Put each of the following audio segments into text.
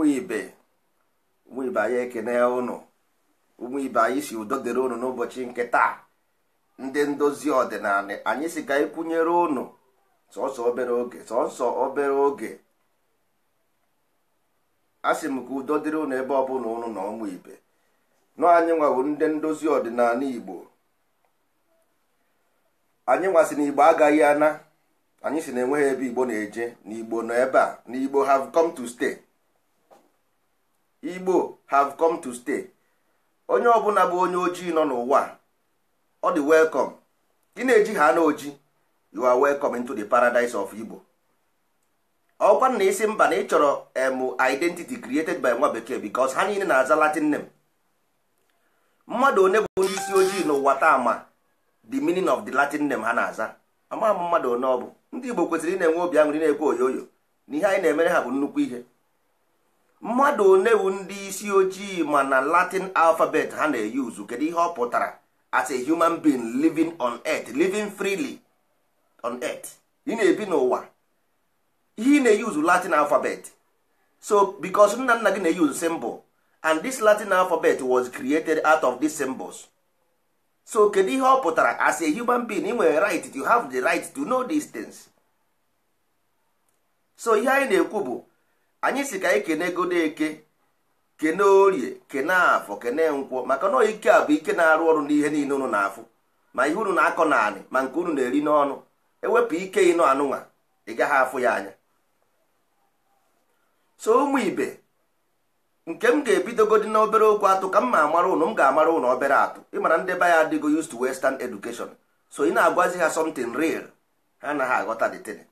ụmụ ibe ụmụ ibe anyị ekene ụnụ ụmụ ibe anyị si udo dịrị ụnụ n'ụbọchị nke taa ndị ndozi ọdịnala anyị si ka ịkwụnyere ụnụ sọsọ obere oge sọsọ obere oge a sị m ka udo dịrị ụnụ ebe ọ ụnụ na ụmụ ibe nọ anyị nwawo ndị ndozi ọdịnala igbo anyị nwasị na igbo agaghị ana anyị si na enweghị ebe igbo na-eje na igbo nọ ebe a na igbo have come to stay igbo have come to stay onye ọbụla bụ onye ojii nọ n'ụwa ọ dị welcome gị na-eji ha na oji you are welcome into the paradise of igbo ọkwa na isi mba na ịchọrọ emu identity created by nwa bekee because ha niile na-aza latin name mmadụ one bụ onye isi ojii n'ụwa taa ma the meaning of the latin name ha na-aza ama mmadụ one ọ bụ ndị igbo kwesịrị ị na-enwe obi aṅụrị na-ekwe oyoyo na ihe anyị na-emere ha bụ nnukwu ihe mmadụ onewu ndị isi ojii ma na latin alfabet ha na-eyuzu kedu ihe ọ pụtara as a human being living on earth living freely on earth ị na-ebi n'ụwa ihe ị na-eyuzu latin alfabet so because nna nna gị na-eyuzu symbol and this latin alfabet was created out of these symbols so kedu ihe ọ pụtara as a human being ị nwere right to have the right to know these things so ihe anyị na-ekwu bụ anyị si ka anyị kene eke kene orie kene afọ kene nkwọ maka na ike a bụ ike na-arụ ọrụ n'ihe niile unu na-afụ ma ihe unu na-akọ naanị ma nke unu na-eri n'ọnụ ewepụ ike ịnụ anụnwa ị gaghị afụ ya anya so ụmụ ibe nke m ga-ebidogodi na obere okwu atụ ka m ma amara ụnụ m ga-amara ụnụ obere atụ ịmara ndị be ya adịgo used to western education so ị na-agwazi ha something real ha anaghị aghọta the thing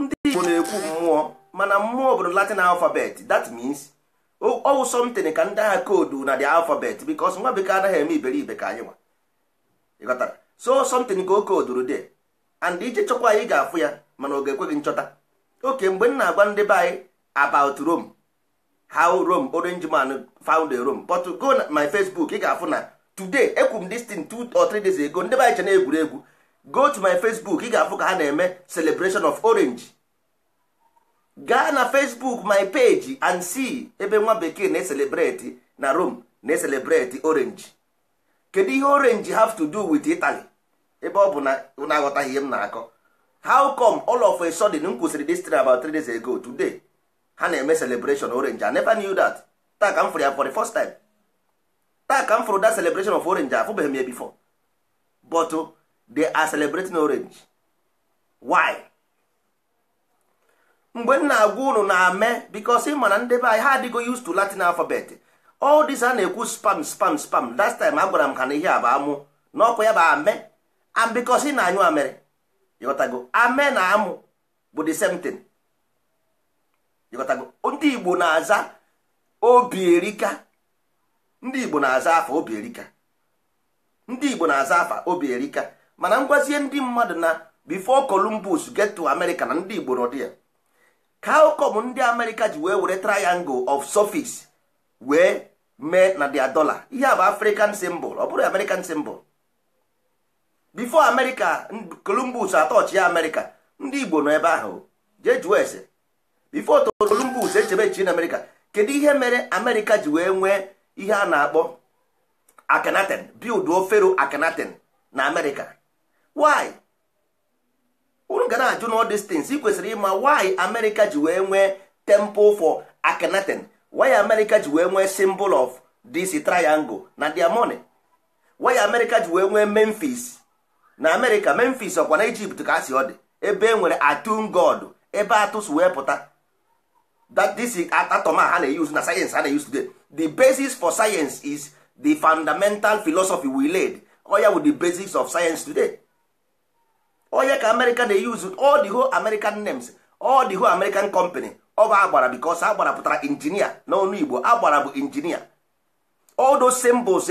ndị Igbo na-ekwu mmụọ mana mmụọ obodo latin alfabet that means ọwụ something ka ndị agha koodu na the alfabet bikos nwa bekee anaghị eme iberibe ka anyị nwa ịghọtara so something ka o kooduru de and ije chọkwa anyị ga-afụ ya mana ọ ga-ekwe gị nchọta oke mgbe m na-agwa ndị be anyị about Rome how Rome orange man found Rome but go na my Facebook ị ga-afụ na today ekwu m this thing two or three days ago ndị be anyị che na egwuregwu go to my Facebook ị ga-afụ ka ha na-eme celebration of orange gaa na facebook my page and see ebe nwa bekee na-eselebreti na rome na-eselebreti orange kedu ihe orange have to do with italy ebe ọ bụ na na-aghọtaghị ihe m na-akọ how come all of a sudden m kwụsịrị this about three days ago today ha na-eme celebration orange i never knew that taa ka m fụrụ ya for the first time taa ka m fụrụ that celebration of orange afụbeghị m ya before but oh, they are celebrating orange why mgbe m na-agwa unu na ame bikos ị mana ndị be anyị ha adịgo used to latin alphabet all this a na-ekwu spam spam spam last time agwara m ha na ihe a bụ amụ na ya bụ ame and bikos ị na-anyụ amịrị ịghọtago ame na amụ bụ the same thing ịghọtago ndị igbo na-aza obi erika ndị igbo na-aza afa obi erika ndị igbo na-aza afa mana ngwazie ndị mmadụ na bifo columbus get to america na ndị igbo nọ ya ka ụkọm ndị amerịka ji wee were triangle of surface wee mee na dia dollar ihe a bụ african symbol ọ bụrụ american symbol before america columbus atọchị ya america ndị igbo nọ ebe ahụ jee jụọ ese before columbus echebe echi na america kedu ihe mere america ji wee nwee ihe a na-akpọ akhenaten build fero akenaten na america why unu gana na-ajụ na distance ị kwesịrị ịma why America ji wee nwee temple for Akhenaten why America ji wee nwee symbol of this triangle na dia moni why America ji wee nwee Memphis na America Memphis ọkwa na Egypt ka asị ọ dị ebe e nwere Atun God ebe atụs wee pụta that this ha na eyuz na sayensị ha na-use today the basis for science is the fundamental philosophy we laid oya with the basics of science today onye ka amerịka na-eyuzu all the whole american names all whole american company ọba agbara because agbara pụtara injinia n'ọnụ igbo agbara bụ injinia all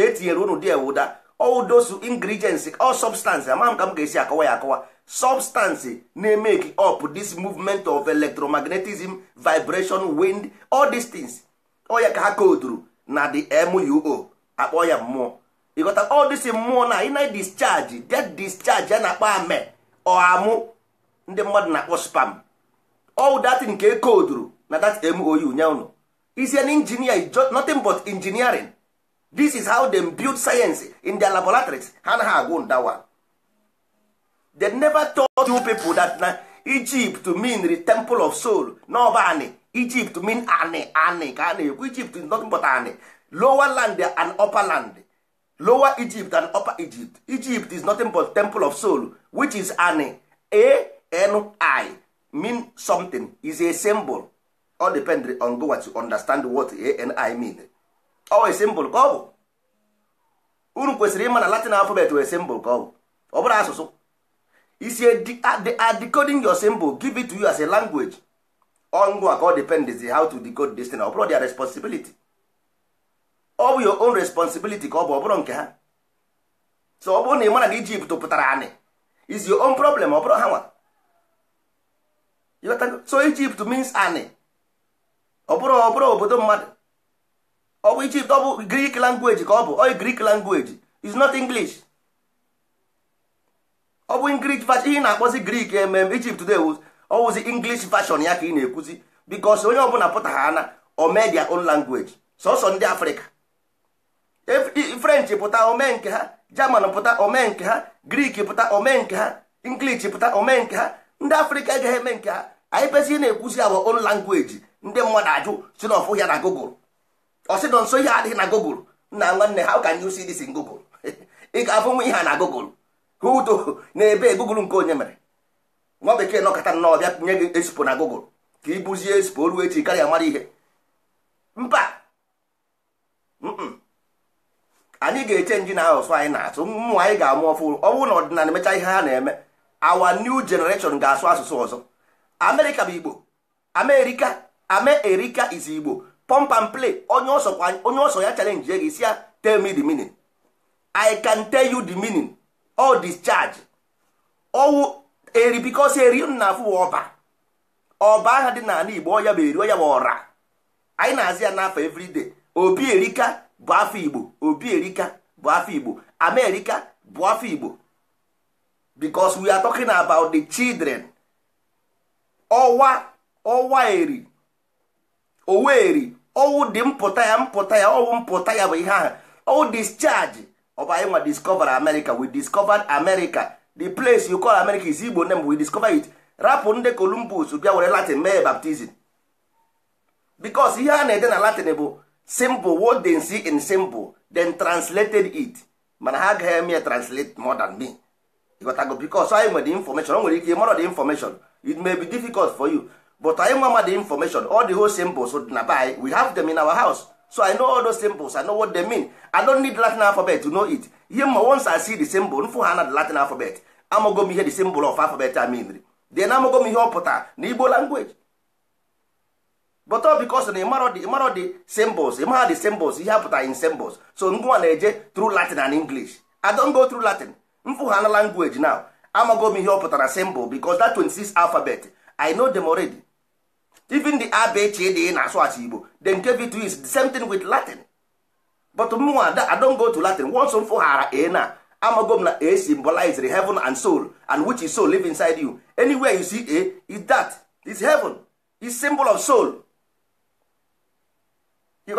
etinyere e unu dị ewuda oldos those ingredients all substance ama m ka m ga-esi akọwa ya akọwa substance na-emeki up this movement of electromagnetism vibration wind all these things onye ka ha koduru na the muo akpọ ya mmụọ ịghọta all this mmụọ na ị na discharge discharge ya na akpa ame ọamụ ndị mmadụ na-akpọ spam all that nke e koduru na that mou nya is an engineer is nothing but engineering this is how them build science in their laboratories ha na ha agwụ ndawa they never taught you people that na Egypt mean the temple of soul n'ọba anị Egypt mean anị anị ka a na-ekwu Egypt is nothing but anị lower land and upper land lower egypt and upper egypt egypt is nothing but temple of soul which is an a-n-i mean something is a symbol all depend on what to understand what a-n-i mean a symbol ka ọ bụ unu kwesịrị ịma na latin alphabet wee symbol ka ọ bụ ọ bụrụ asụsụ isi they are decoding your symbol give it to you as a language ọ ngwa ka ọ depend how to decode this thing ọ bụrụ their responsibility ọ bụ your own responsibility ka ọ bụ ọ bụrụ nke ha so ọ bụrụ na ị mara na ijipt pụtara anị is your own problem ọ bụrụ ha nwa so ijipt means anị ọ bụrụ ọ bụrụ obodo mmadụ ọ bụ ijipt ọ bụ greek language ka ọ bụ oy greek language is not english ọ bụ english version ihe na-akpọzi grik emem ijipt today ọ wụzi english version ya ka ị na-ekwuzi because onye ọbụla pụta ha ana o mee their own language sọsọ ndị africa. french pụta omenke ha german pụta omenke ha grik pụta omenke ha english pụta omenke ha ndị afrịka agaghị eme nke ha anyị pesi na-ekwuzi awa own langweji ndị mmadụ ajụ si na ọfụ ya na google ọsịdọ nso ihe adịghị na google nna nwanne ha ka new cdc google ị ga-afụ nwa ihe a na google hudo na-ebe e google nke onye mere nwa bekee nọkọta nnọọ bịa nye gị esipo na gogl ka ị bụzie esipo ruo echi karịa mara ihe mba anyị ga-eche nji na anyị na-asụ mmụ anyị ga-amụ ọfụrụ ọ bụrụ na ọdịnala emecha ihe ha na-eme awa new generation ga-asụ asụsụ ọzọ amerịka bụ igbo amerika amerika is igbo pump and play onye ọsọ ya chalenji gị si ya tell me the meaning i can tell you the meaning all discharge ọwụ eri bikos eri na afụ ọba ọba aha dị n'ala igbo ọ ya bụ eri ọ ya bụ ọra anyị na-azị ya n'afọ everyday obi erika bụ afọ igbo obi erika bụ afọ igbo amerika bụ afọ igbo because we are talking about the children ọwa ọwa eri oweri ọwụ dị mpụta ya mpụta ya ọwụ mpụta ya bụ ihe ahụ ọwụ discharge ọba anyị nwa discover america we discovered america the place you call america is igbo name we discover it rapụ ndị columbus bịa were latin mee baptizim because ihe a na-ede na latin bụ Simple. what they see in simple, then translated it mana ha agaghị eme ya translate more than me ịghọtago bicos anyị nwere information o nwere ike mara the information it may be difficult for you but anyị nwa ma the information all the whole symbols na by we have them in our house so i know all those symbols i know what they mean i don't need latin alphabet to know it ihe once i see the symbol nfu ha na the latin alphabet amago m ihe the symbol of alphabet I mean then amago m ihe ọ pụtara na igbo language but all because na the dị ịmarọ dị symbols ịmara dị symbols ihe apụtara in symbols so ngwa na-eje through latin and english i don't go through latin mfụghana language now amago m ihe ọ pụtara symbol because that 26 alphabet i know them already even the abchd na-asụ asụ igbo the nke v is the same thing with latin but mụnwa i don't go to latin once m fụghara a na amago m na a symbolizes heaven and soul and which is soul live inside you anywhere you see a is that is heaven is symbol of soul you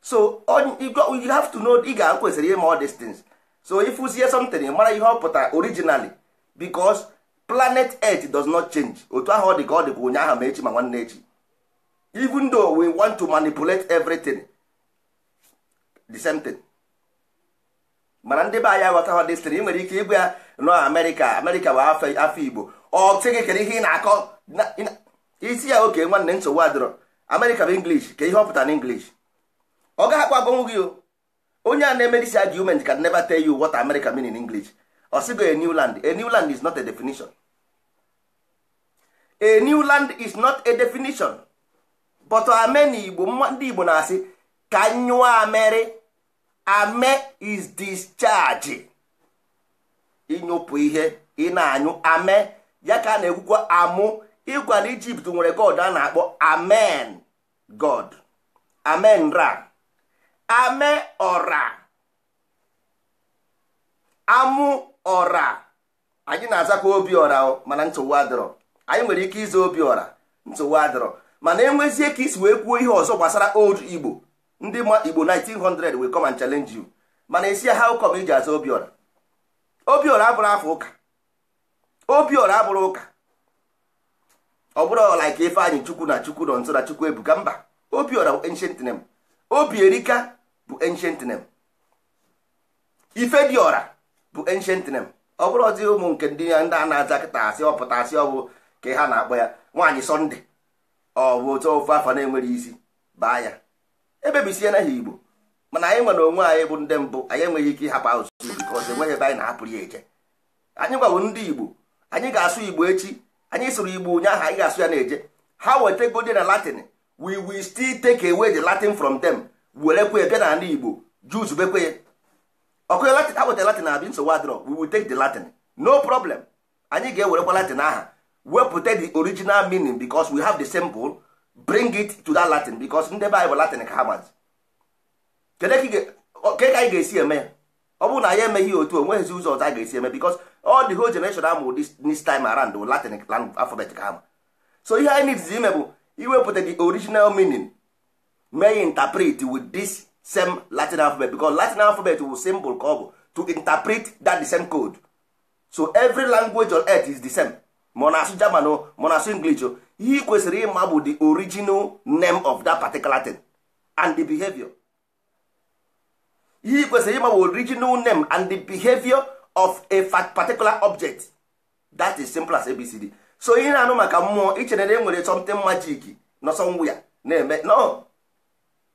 so you have to know ị ga kwesịrị ime all these things so if ịfụzie something mara ihe ọ pụtara originally because planet earth does not change otu ahụ ọ dị ka ọ dịkwa ụnyaahụ ma echi ma nwanne echi even though we want to manipulate everything the same thing mana ndị be anyị ghọta hụ destin ị nwere ike ịgba ya nọ amerika amerịka bụ afọ igbo ọ sị gị kedu ihe ị na-akọ isi ya oke nwanne nsogbu adịrọ amerịka bụ english ka ihe ọ pụtara english ọ gaghị gị onye a na-eme argument can never tell you what America mean in English ọ a new land a new land is not a definition a new land is not a definition but ame Igbo ndị Igbo na-asị ka nyụọ amere ame is discharge ịnyụpụ ihe ị na-anyụ ame ya ka a na-ekwukwa amụ ịgwa na Ijipt nwere god a na-akpọ amen god amen ra ame ọra amụ ọra anyị na-azakwa obi ọra mana ntụwa adịrọ anyị nwere ike ịza obi ọra ntụwa adịrọ mana enwezie ka isi wee kwuo ihe ọzọ gbasara old igbo ndị ma igbo 1900 will come and challenge you mana esi ụkọ come iji aza obi ọra obi ọra abụrụ afọ ụka obi abụrụ ụka ọ bụrụ ọla ka ife anyị chukwu na chukwu nọ nso na chukwu ebuka mba obi ancient name obi erika bụ ancient name ifediora bụ ancient name ọ bụrụ ọdị ụmụ nke ndị ya ndị a na-aza kịta asị ọpụta asị ọ bụ ka ha na-akpọ ya nwaanyị sọnde ọ bụ otu ofe afọ na-enwere isi baa ya ebebisie na igbo mana anyị nwere onwe anyị bụ ndị mbụ anyị enweghị ike ịhapụ asụsụ bikọz enweghị ebe anyị na-ahapụrụ ya eje anyị gwawo ndị igbo anyị ga-asụ igbo echi anyị sụrụ igbo ụnyaahụ anyị ga-asụ ya na-eje ha wetagodi na latin wi wi still tek away the latin from them werekwe bịa na ala igbo juz bekwe ya ọkụnye latin akpụta latin abi nsogbu adịrọ we will take the latin no problem anyị ga-ewerekwa latin aha wepụta the original meaning because we have the simple bring it to that latin because ndị be anyị bụ latin ka ha mazi ke ka anyị ga-esi eme ọ bụrụ na anyị emeghị otu onweghịzi ụzọ ọzọ anyị ga-esi eme because all the whole generation amụ this time around latin alphabet ka ha ma so ihe anyị need ime bụ iwepụta the original meaning may interpret with this same latin alphabet because latin alphabet wu symbol ka ọ bụ to interpret that the same code so every language on earth is the same monasu na-asụ german o ma na-asụ english o ihe kwesịrị ịma bụ the original name of that particular thing and the behavior ihe kwesịrị ịma bụ original name and the behavior of a particular object that is simple as abcd so ihe na-anụ maka mmụọ ichere na e nwere something magic nọ somewhere na-eme no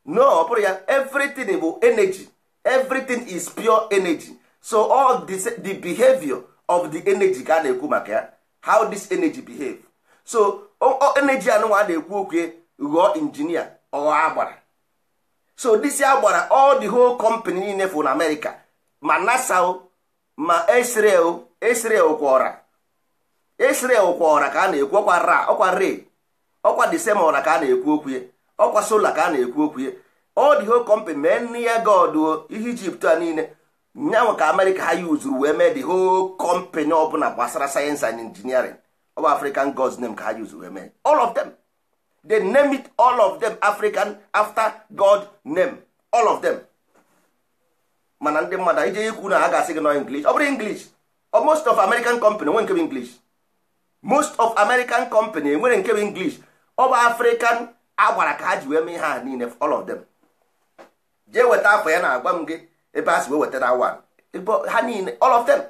no ọ bụrụ ya everything bụ energy everything is pure energy so all this, the behavior of the energy ka a na-ekwu maka ya how this energy behave so energy anụnwa a na-ekwu okwu ghọọ injinia ọghọ agbara so this agbara all the whole company niile fụ na America ma NASA ma Israel Israel kwọra Israel kwọra ka a na-ekwu ọkwa ra ọkwa re ọkwa the same ọra ka a na-ekwu okwu ọkwa sola ka a na-ekwu okwu ya ọ dị ho kọmpanị mee nne ya goduo ihe ijipt a niile nyanwa ka amerịka ha yuzuru wee mee dị ho kọmpanị ọbụla gbasara sayensị and injiniarin ọ bụ african gods name ka ha yuzuru wee mee all of them they name it all of them african after god name all of them mana ndị mmadụ ije ikwu na ha ga-asị gị nọ english ọ bụrụ english most of american company enwere nke bụ english most of american company enwere nke bụ english ọ bụ african a gwara ka ha ji wee mee ihe ha niile all of them jee weta afọ ya na-agwa m gị ebe a si wee wetara awa ha niile all of them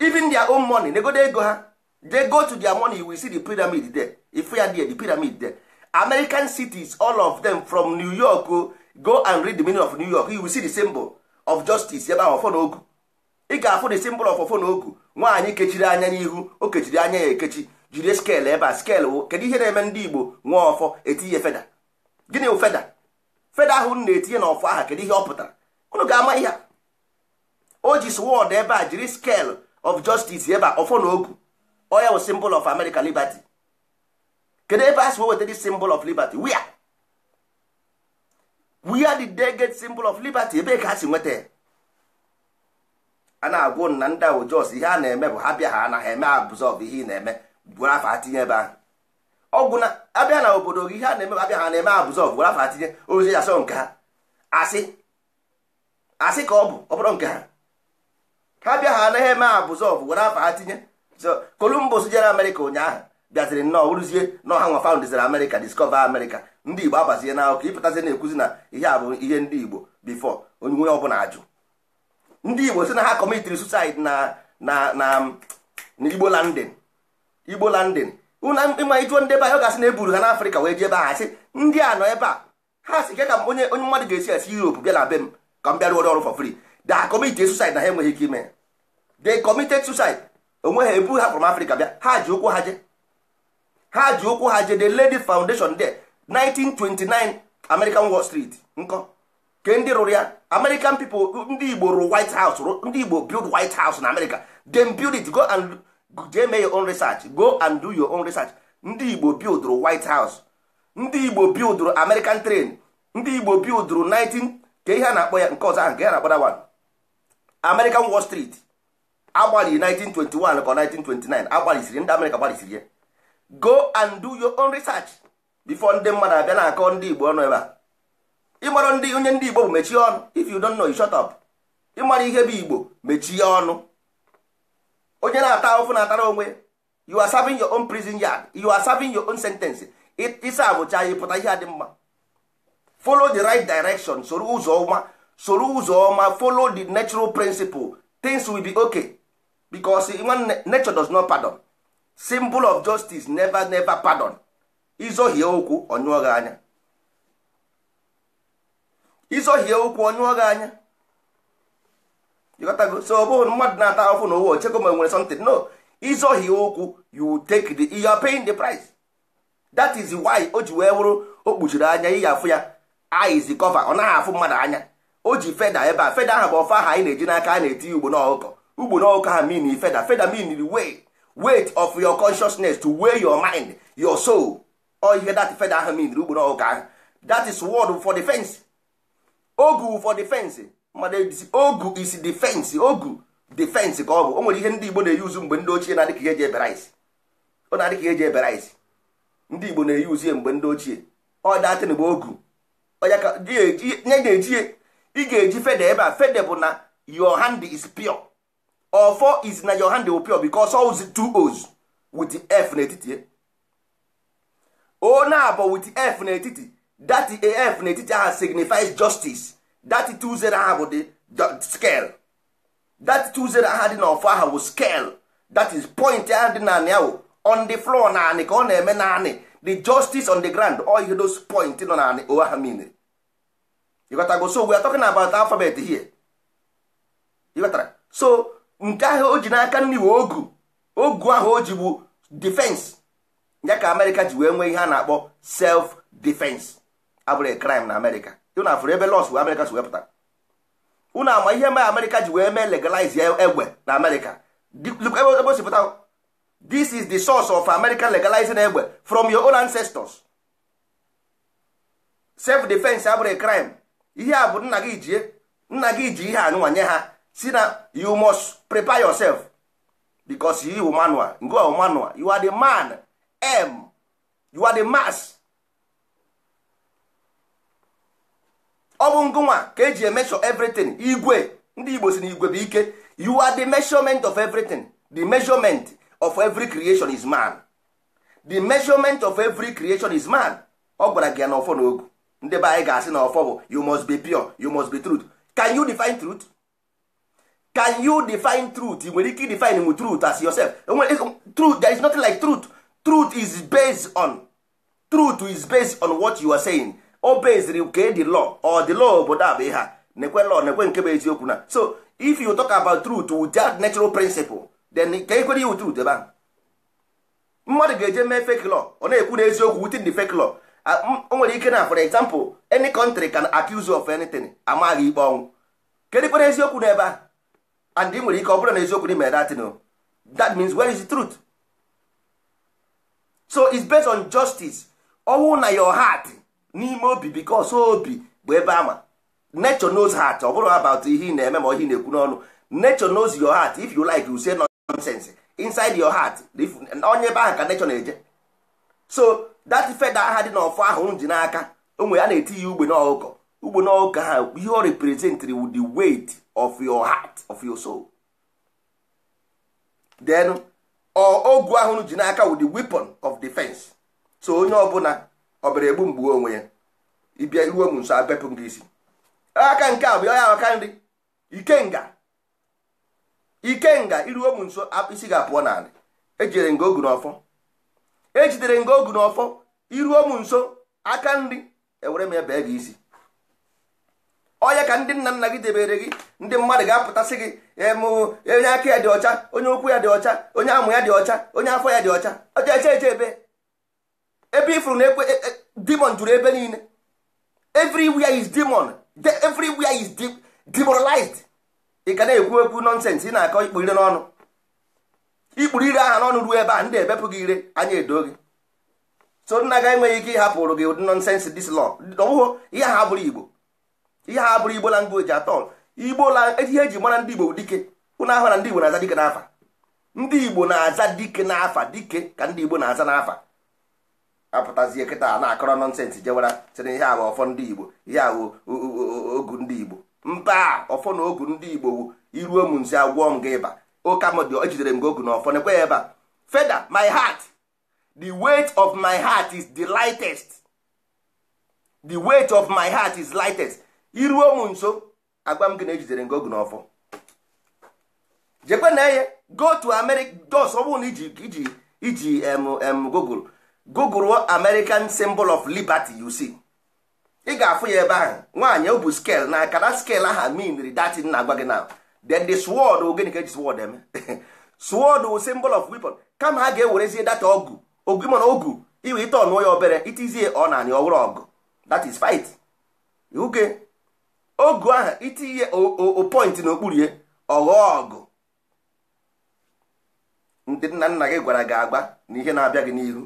even their own money negodo ego ha they go to their money we see the pyramid there ifu ya there the pyramid there american cities all of them from new york oh, go and read the meaning of new york you will see the symbol of justice ebe ahụ ọfọ na ogu ị ga-afụ the symbol of ọfọ na ogu nwaanyị kechiri anya n'ihu o kechiri anya ya ekechi jiri skel ebe eh, a skel oh. kedu ihe na-eme ndị igbo nwee ọfọ etinye feda gịnị feda feda ahụ na-etinye na ọfọ aha kedu ihe ọ pụtara unu ga-ama ihe o ji swọd ebe a jiri skel of justice ebe a ọfọ na ogu oya wụ simbol of amerika liberty kedu ebe a si weweta dị symbol of liberty wia wia did de get simbol of liberty ebe ka ha si nweta ana a na-agwụ na ndị ahụ jos ihe a na-eme bụ ha bịa ha anaghị eme absorb ihe ị na-eme gwara afa atinye ebe ahụ ọgwụ na abịa na obodo gị ihe a na-eme abịa ha na-eme abụzọ gwara afa atinye ozi asọ nke ha asị asị ka ọ bụ ọ bụrụ nke ha ha bịa ha anaghị eme abụzọ gwara afa atinye so Columbus jere Amerịka ụnyaahụ bịaziri nnọọ bụrụzie na ọha nwa faundiziri Amerịka discover Amerịka ndị Igbo abazie na akụkọ ịpụtazi na-ekwuzi na ihe a bụ ihe ndị Igbo before onye ọbụla ajụ ndị Igbo si na ha kọmitiri suicide na na na Igbo London igbo landin ịma ịjụọ ndị ebe a ọ ga-asị na eburu ha n'afrịka wee jee ebe a sị ndị a nọ ebe a ha si ke ka onye onye mmadụ ga-esi esi europe bịa na be m ka m bịa rụọrọ ọrụ for free da kọmiti suicide na ha enweghị ike ime de kọmited suicide onwe ha ebu ha from afrịka bịa ha ji ụkwụ ha je ha ji ụkwụ ha je de lady foundation de 1929 american wall street nkọ ke ndị rụrụ ya american people ndị igbo rụrụ white house ndị igbo build white house na america dem build it go and jee mee your own research go and do your own research ndị igbo bildụrụ white house ndị igbo bildụrụ american train ndị igbo bildụrụ 19 ka ihe a na-akpọ ya nke ọzọ ahụ ka ya na-akpọ dawan american wall street agbalị 1921 ka 1929 agbalịsiri ndị amerịka gbalịsiri ya go and do your own research before ndị mmadụ abịa na-akọ ndị igbo ọnụ ebe a ịmara ndị onye ndị igbo bụ mechie ọnụ if you don't know you shut up ịmara ihe bụ igbo mechie ọnụ onye na-ata ahụhụ na-atara onwe you are serving your own prison yard you are serving your own sentence ịsa abụcha ya pụta ihe a dị mma folo the right direction soro ụzọ ọma soro ụzọ ọma follow the natural principle things will be okay because nature does not pardon symbol of justice never never pardon izohie okwu onyụọ gị okwu anya ịghọtago so ọ bụghị mmadụ na-ata ahụhụ na ụwa ochego ma nwere something no ịzọghị ụkwụ you take the you are paying the price that is why o ji wee wụrụ o kpuchiri anya ihe afụ ya eyes cover ọ naghị afụ mmadụ anya o ji feda ebe a feda ahụ bụ ọfa ahụ anyị na-eji n'aka a na-etinye ugbo n'ọkụkọ ugbo n'ọkụkọ ha mean feda feda mean way weight of your consciousness to weigh your mind your soul ọ ihe that feda ahụ mean ugbo n'ọkụkọ ahụ that is word for defense ogu for defense mmadụ ejisi ogu isi defense ogu defense ka ọ bụ o nwere ihe ndị igbo na-eyuzu mgbe ndị ochie na-adịka ihe eji ebere isi ọ na-adị ihe eji ebere ndị igbo na-eyuzu ya mgbe ndị ochie ọ datịn bụ ogu onye ga-eji ị ga-eji fede ebe a fede bụ na your hand is pure ọfọ is na your hand bụ pure because oz two oz with f n'etiti o na wit with f n'etiti that f n'etiti ahụ signifies justice that two zero ha bụ dị scale that two zero ha dị n'ọfọ aha bụ scale that is point ha dị naanị ya on the floor naanị ka ọ na-eme naanị the justice on the ground all ihe those point nọ naanị o ha mean ịghọtago so we are talking about alphabet here ịghọtara so nke ahụ o ji n'aka nri ogu ogu ahụ o ji bụ defense ya ka amerịka ji wee nwee ihe a na-akpọ self defense abụrụ crime na amerịka unu afụrụ ebe lọs amerịka si wepụta unu ama ihe ma amerịka ji wee mee legalize egbe na amerịka ebe o this is the source of america legalizing egbe from your own ancestors self defense abụrụ crime ihe a bụ nna gị jie nna gị ji ihe anụnwa nye ha si na you must prepare yourself because you are manual you are the man m you are the mass ọ bụ ngụnwa ka eji emesho everything igwe ndị igbo si na igwe bụ ike you are the measurement of everything the measurement of every creation is man the measurement of every creation is man ọ gwara gị ya na ọfọ ndị be anyị ga-asị na ọfọ bụ you must be pure you must be truth can you define truth can you define truth ị nwere ike define with truth as yourself truth there is nothing like truth truth is based on truth is based on what you are saying Obeziri beziri nke dị law ọ dị lọ obodo a bụ ihe a nekwe law nekwe nke bụ eziokwu na so if you talk about truth with that natural principle then ka ekwere iwu truth ebe ahụ mmadụ ga-eje mee fake law ọ na-ekwu na eziokwu within the fake law o nwere ike na for example any country can accuse you of anything amaghị ikpe ọnwụ kedikwere eziokwu n'ebe a and ị nwere ike ọ bụrụ na eziokwu dị mere datin that means where is the truth so it's based on justice ọnwụ na your heart n'ime obi because obi bụ ebe ama nature knows heart ọ bụrụ about ihe ị na-eme ma ihe na-ekwu n'ọnụ nature knows your heart if you like you say nonsense inside your heart onye ebe ahụ ka nature na-eje so that feather aha dị n'ọfọ ahụ m ji n'aka onwe ya na-eti ya ugbe n'ọkụkọ ugbe n'ọkụkọ ha ihe ọ representịrị with the weight of your heart of your soul then ogu ahụ ji n'aka with the weapon of defense so onye ọbụla ọ bịara egbu mgbu onwe ya ịbịa iruo m nso abepụ gị isi aka nke a bụ ya aka nri ikenga ikenga iruo m nso isi ga-apụọ n'ala ejidere nga ogu n'ọfọ ejidere nga ogu n'ọfọ iruo m nso aka nri ewere m ya bee gị isi ọya ka ndị nna nna gị debere gị ndị mmadụ ga-apụtasị gị e e onye aka ya dị ọcha onye ụkwụ ya dị ọcha onye amụ ya dị ọcha onye afọ ya dị ọcha ọcha eche eche ebe ebe ifuru na ekwe e, e, demon juru ebe niile everywhere is demon everywhere is demoralized ị ka na-ekwu ekwu nọnsensị ị na-akọ ikpu ire n'ọnụ ikpuru ire aha n'ọnụ ruo ebe a ndị ebepụ gị ire anya edo gị so nna ga enweghị ike ịhapụrụ gị ụdị nọnsensị dis lọ ọbụghụ ihe ha bụrụ igbo ihe ha bụrụ igbo language atọ igbo la ihe eji mara ndị igbo bụ dike ụnụ ahụ na ndị igbo na-aza dike n'afa ndị igbo na-aza dike n'afa dike ka ndị igbo na-aza n'afa apụtazie kịta na-akọrọ nọnsensị jewara sị ihe a ọfọ ndị igbo ihe a bụ ogu ndị igbo mba ọfọ na ogu ndị igbo wu iruo m nzi agwọ m gị ịba ụka m dị ejidere m gị ogu na ọfọ nekwe ya ebe feda my heart the weight of my heart is the lightest the weight of my heart is lightest iruo m nso agwa m gị na ejidere gị ogu na ọfọ jekwe na eye go to america dos ọ bụrụ na iji iji iji google google american symbol of liberty you see ị ga-afụ ya ebe ahụ nwaanyị o bụ scale na akara scale aha minri datin na-agwa gị na then the sword ogene ka eji sword eme sword wụ symbol of weapon kama ha ga-ewerezie data ogu ogu mana ogu iwe ite ọnụọ ya obere itizie ọ na anị ọhụrụ ọgụ that is fight oge ogu ahụ itinye o point n'okpuru ya ọghọọ ọgụ ndị nna nna gị gwara gị agba na ihe na-abịa gị n'ihu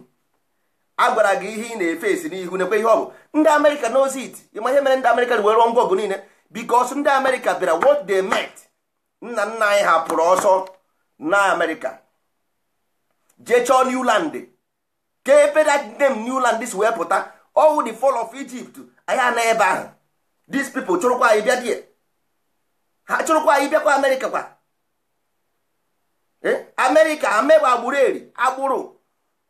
a gwara gị ihe ị na-efe esi n'ihu nekwe ihe ọ bụ ndị amerịka knows it ịma ihe mere ndị amerịka were ngwa ọgụ niile because ndị amerịka bịara what they met nna nna anyị hapụrụ ọsọ na amerịka jee chọọ newland ka ebe that new newland si wee pụta owu the fall of egypt anyị ana ebe ahụ these people chụrụkwa anyị bịa die ha chụrụkwa anyị bịakwa amerịka kwa eh? amerịka amegbe agbụrụ eri agbụrụ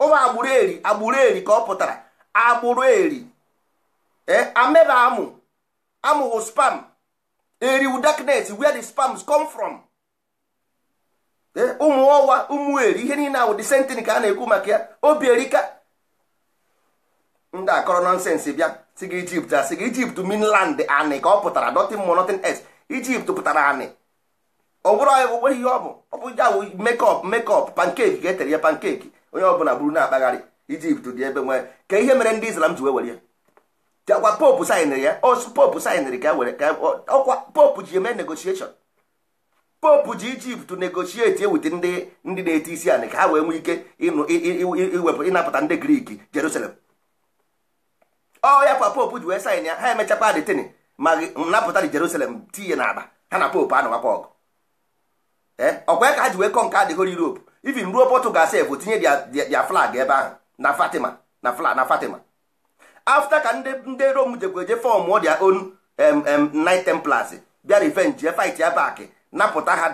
ụmụ agbụrụ eri agbụrụ eri ka ọ pụtara agbụrụ eri e eh, ameba amụ amụghụ spam eriwu darknet where the spams come from eh, ụmụ ọwa ụmụ eri ihe niile ahụ disentini ka a na-ekwu maka ya obi erika ndị akọrọ nọnsensị bịa si ijipt a gị ijipt minland anị ka ọ pụtara nothing more nothing else ijipt pụtara anị ọ bụrụ ihe ọ bụ ọ bụ ya bụ mekọp mekọp pankeki ga-etere ya pankeki onye ọbụla bụrụ na-akpagharị ijipt dị ebe nwee ka ihe mere ndị islam ji wee were ya chakwa popu saịnịrị ya osu popu saịnịrị ka e were ka e, ọkwa popu ji eme negotieshọn popu ji ijipt negoshieti ewute ndị ndị na-eti isi anị ka ha wee nwee ike iwepụ ịnapụta ndị griki jerusalem ọ ya kwa popu ji wee sain ya ha emechakwa adịtịnị ma napụta dị jerusalem tinye n'akpa ha na popu anọwakwa ọgụ ọkwa ya ka ha ji wee kọ nke adịghị europe even ruo Portugal sef tinye dia flag ebe ahụ na Fatima na flag na Fatima afta ka ndị ndị Rome jekweje fọm dia own Knight Templars bịa revenge fight ya back napụta ha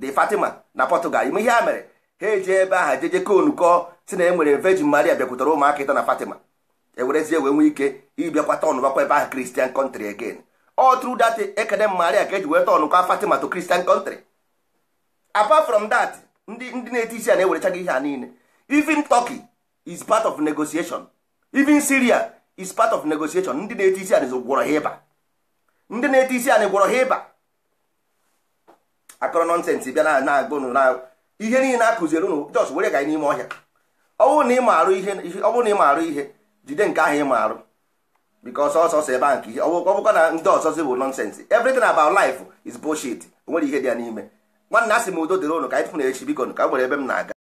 the Fatima na Portugal ime ihe ha mere ha eji ebe ahụ jeje konukọ si na enwere Virgin Maria bịakwutara ụmụaka ịta na Fatima ewerezie wee nwee ike ịbịakwa tọn bakwa ebe ahụ kristian contry again all through that ekene Maria ka eji wee tọnụkwa Fatima to Christian country apart from that ndị ndị na-eti isi a na-ewerecha gị ihe a niile even Turkey is part of negotiation even Syria is part of negotiation ndị na-eti isi a gwọrọ ha ịba ndị na-eti isi a gwọrọ ha ịba akọrọ nọnsensị bịa na agba ụnụ na ihe niile akụziere unu jos were ga n'ime ọhịa ọ na ị ma arụ ihe ọ bụrụ na arụ ihe jide nke ahụ ị ma arụ bikos ọsọsọ ebe a nke ihe ọ bụkwa na ndị ọsọ ọzọzi bụ nọnsensị everything about life is bullshit o nwere ihe dị ya n'ime nwanne asị sị m udo dịrị ụnụ ka anyị tụfụ na echi biko ka m nwere ebe m na-aga